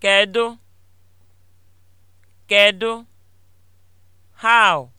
Kedu? Kedu? How?